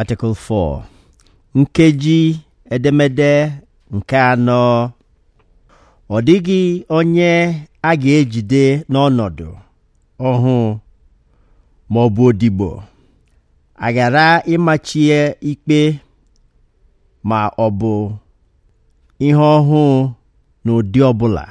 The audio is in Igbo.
Article 4 nkeji edemede nke anọ ọ dịghị onye a ga-ejide n'ọnọdụ ọhụụ ma ọ bụ odibo a ghara ịmachie ikpe ma ọ bụ ihe ọhụụ n'ụdị ọ bụla